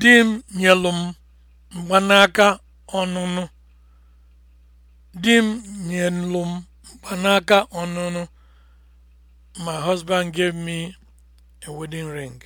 Di m nyelụ m mgbanaka ọnụnụ. Di m My husband gave me a wedding ring.